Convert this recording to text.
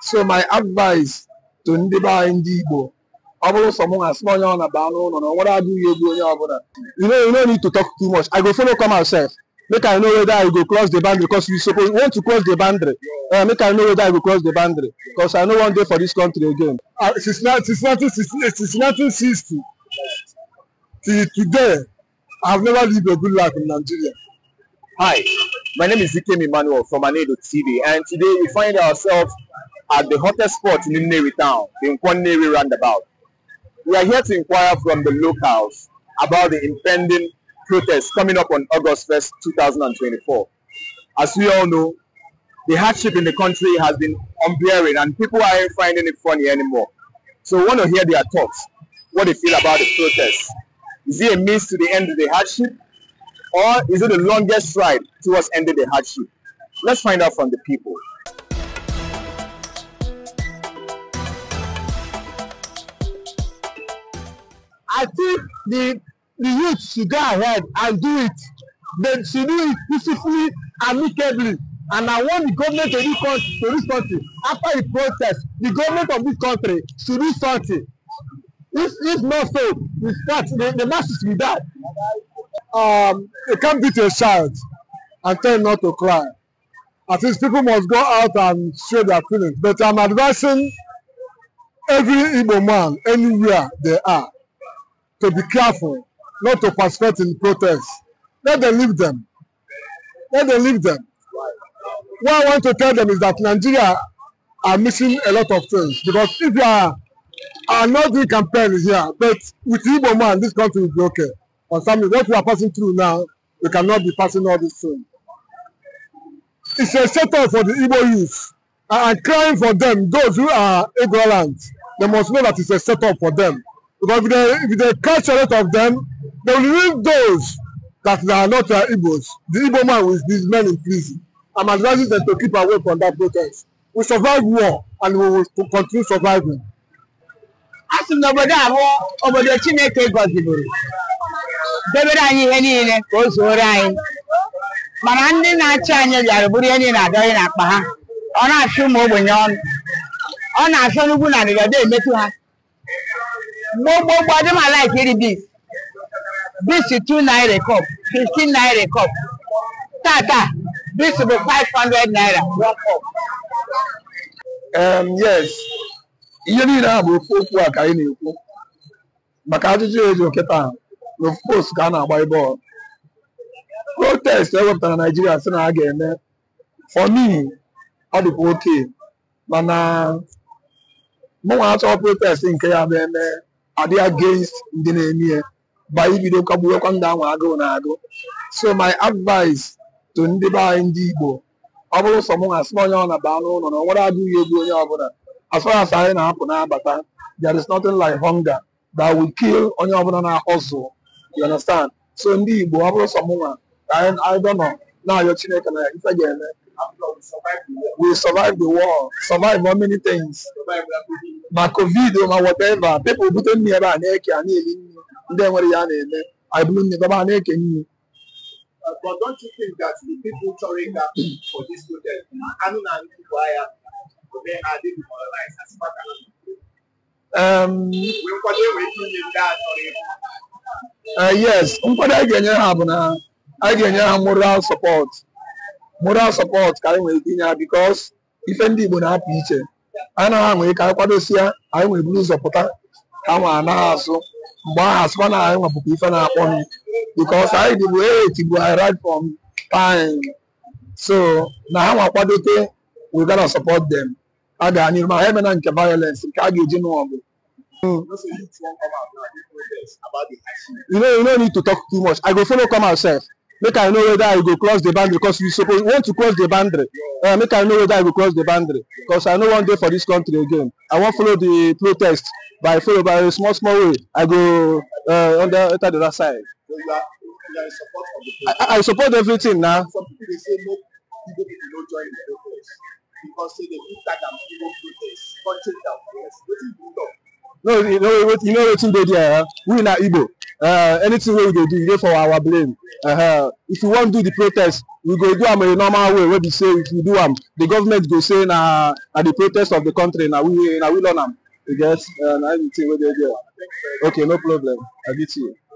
so my advice to ndị be anyị ndị Igbo ọ bụrụ sọ mụnwa asị onye ọ na-aba n'ụlọ na nwere adịghị egwu onye ọbụla you know, you no need to talk too much I go follow come myself make I know whether I go cross the boundary because we suppose want to cross the boundary uh, make I know whether I go cross the boundary because I no wan dey for this country again. Uh, since, since, since 1960 till today I have never lived a good life in Nigeria. Hi, my name is Ikem Emmanuel from Anedo TV and today we find ourselves at the hottest spot in Nnewi town, the Nkwannewi roundabout. We are here to inquire from the locals about the impending protest coming up on August 1st, 2024. As we all know, the hardship in the country has been unbearing and people aren't finding it funny anymore. So we want to hear their thoughts, what they feel about the protest. Is it a means to the end of the hardship or is it the longest stride towards ending the hardship? Let's find out from the people. I think the the youth should go ahead and do it. They should do it peacefully, amicably. And I want the government to this country, to this country after the protest, the government of this country should do something. If if not so, we start the, the masses will die. Um, you can't beat a child and tell him not to cry. At least people must go out and show their feelings. But I'm advising every Igbo man anywhere they are to be careful not to participate in protests. Let them leave them. Let them leave them. What I want to tell them is that Nigeria are missing a lot of things because if you are, are not doing campaign here, but with Igbo man, this country will be okay. But something, what we are passing through now, we cannot be passing all this through. It's a setup for the Igbo youth. I am crying for them, those who are ignorant, they must know that it's a setup for them. Because if they, if they catch a lot of them, they will leave those that are not uh, Igbos. The Igbo man with these men in prison. I'm advising them to keep away from that protest. We survive war and we will continue surviving. a sị m na obodo abụọ, obodo Chineke gọziburu debere anyị ihe niile ka o zuoro anyị mana ndị na-achị anyị bịara bụrụ ihe niile adọghị n'akpa ha ọ na-achụ ụmụ ogbenye ọnụ ọ na-achọ n'ugwu na ndịda emetụ ha gbogbogbò ọdún máa láìkí rí beans beans two naira cup fifteen naira cup tata beans bụ five hundred naira one cup. Um, yes ihe niile a bụ ofu okwu a ka ị na-ekwu maka ajụjụ eji okịta na ka a na-agba bọọlụ protest ewepụtara naijiria sị na a ga-eme for me ọ dịkwa oke mana mụnwa achọ protest nke ya bụ eme adị against ndị na-eme ya ba ibido kagbuwekwa ndụ ahụ agụụ na-agụ so my advice to ndị anyị ndị Igbo ọ bụrụ sọ onye ọ na-aba anụ ụlọ na ọ nwere onye ọbụla as far as anyị na-apụ na there is nothing like hunger that will kill onye ọbụla na-ahụzụ you understand so ndị Igbo anyị Chineke na ife ga-eme we survive the war survive many things ma covid ma whatever pepụl bute nne ebe a na-eke a na-eli nri ndị enwere ya na-eme bụrụ nne ebe a na-eke nri But that chọrọ ịga for dis anụ na nkwado um, a uh, yes nkwado a ga-enye ha bụ na a ga-enye ha moral support moral support ka anyị nwere ike inye ha because ife ndị Igbo na-apụ iche na anwe ka anyị kwadosia anyị nwere buru ụzọ pụta ka nwa anaghị azụ mgbe ahụ asụkwa na anyị nwa ife na-akpọ m because anyị dịbu etigbu anyị right from so na ha nwakwado we gotta support dem. a ga n'iru ma ha emena nke violence nke a ga-eji n'ọgụ you know make i know whether i go cross the boundary because we suppose want to cross the boundary uh, make i know whether i go cross the boundary because i no wan dey for this country again i wan follow the protest by follow by a small small way i go uh, under enter the other side. So you are, you are in support of the protest. I, I support everything na. some people dey say no people people no join the protest because say dey fit tag people protest. protest country down protest wetin you know. no you know wetin you know wetin dey there huh? we na igbo uh, anything wey we dey do e dey for our brain. uh -huh. if we wan do the protest we go do am in a normal way wey be say if we do am the government go say na na the protest of the country na we na we learn am you get uh, na anything wey dey there okay no problem i get you.